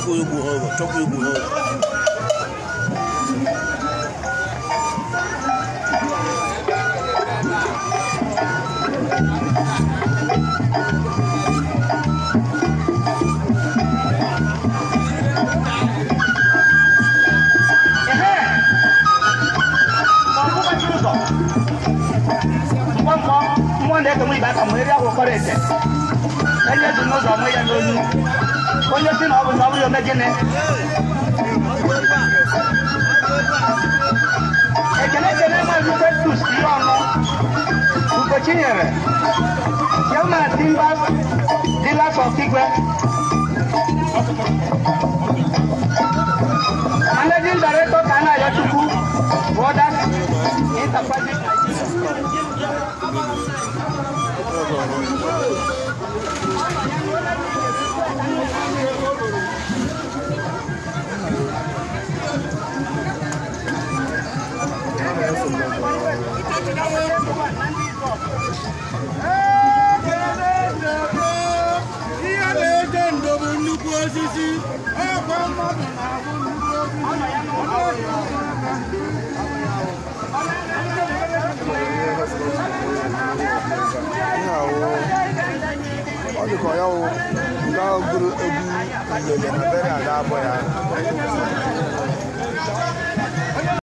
조금 무허 조금 무허 mọ ndẹ tó mú ibà kàn mọ eré àwòkọ rẹ tẹ yesin abu sabu yo mejene eh, ekele kele ma ju pe tu si ono ko chinyere ye ma timba dila so kigwe Managing Director Kana Yachuku, Borders, Interface Nigeria. ihe na-ede ndo bụ nnukwu osisi ọkwa mmadụ na-abụ nnukwu osisi ọ dịka ya wụ ndị gụrụ egwu lele na bere a ga-abụ ya